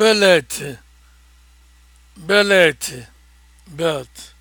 belet beleti belt